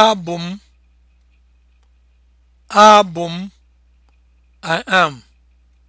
abụ m abụ I am